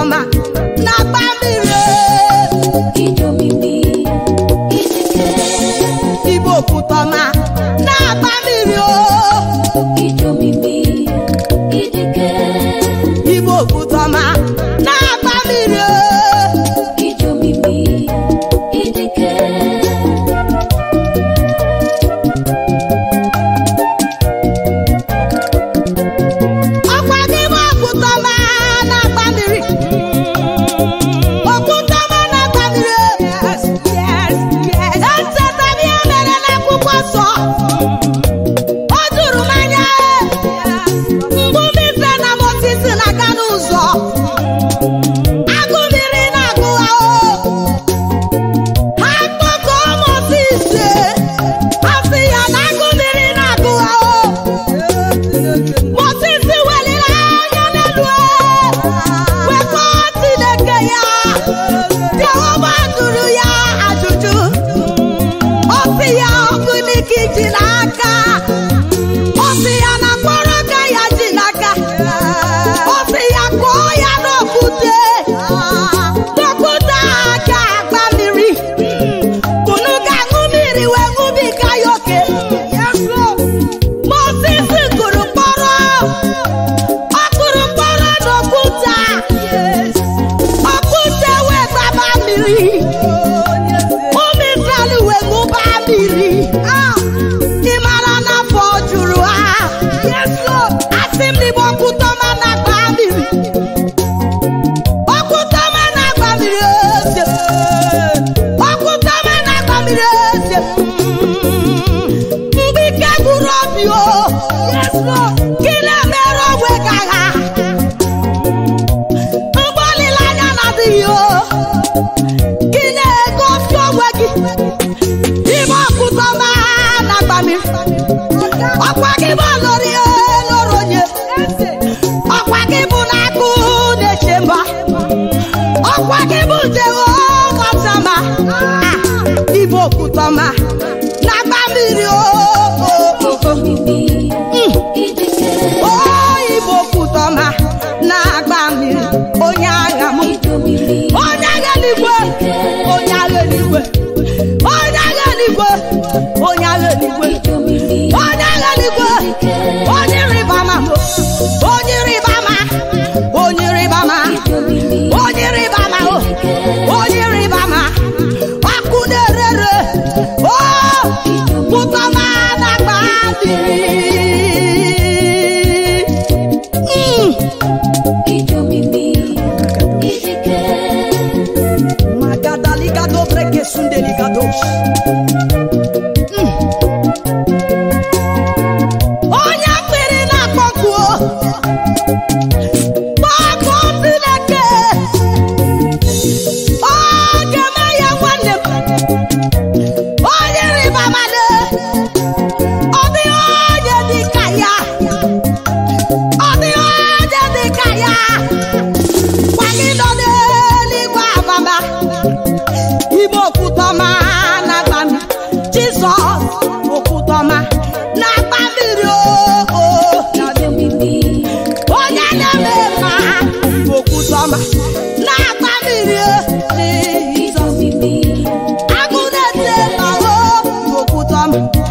ọma na-agba mmiri igbo okwutọma na-agba ooo okwutọma Deus. Thank you.